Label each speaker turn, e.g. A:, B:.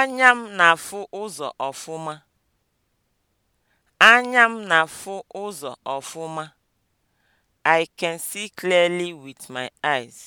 A: Anya m na-afụ ụzọ ọfụma. Anya m na-afụ ụzọ ọfụma. I can see clearly with my
B: eyes.